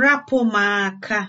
rapụ m aka